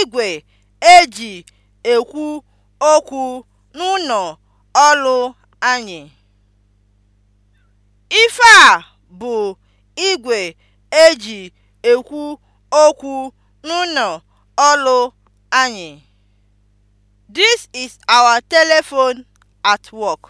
igwe eji ekwu okwu n'ụlọ ọrụ anyị. Ife a bụ igwe eji ekwu okwu n'ụnọ ọrụ anyị. This is our telephone at work.